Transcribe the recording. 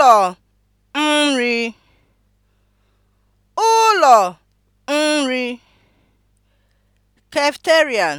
ụlọ nri ụlọ nri (Cafeterian)